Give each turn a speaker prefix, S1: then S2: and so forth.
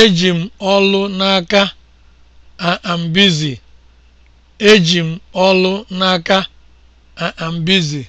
S1: Eji m ọlụ n'aka. I am busy. Eji m ọlụ n'aka. I am busy.